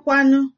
kwanu.